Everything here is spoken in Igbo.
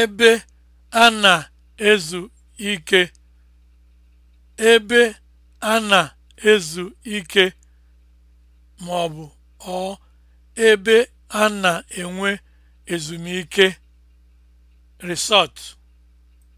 ebe a na-ezu ike ebe a na-ezu ike ma ọ bụ ọ ebe a na-enwe ezumike resort